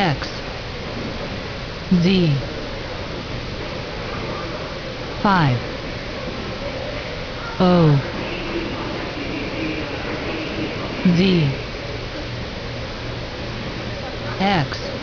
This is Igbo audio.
X Z 5 O Z X